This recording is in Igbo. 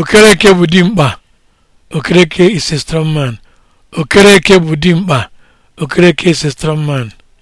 okereke bụ dimkpa okereke is a strong man okereke bụ dimkpa okereke is a strong man